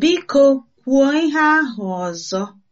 Biko kwuo ihe ahụ ọzọ.